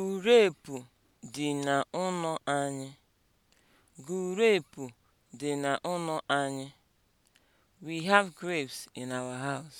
Gurepu dị na dị na ụnọ anyị. We have grapes in our house.